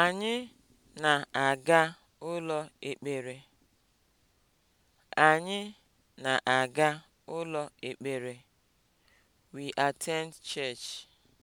Anyị na-aga ụlọ ekpere. Anyị na-aga ụlọ ekpere. We attend church.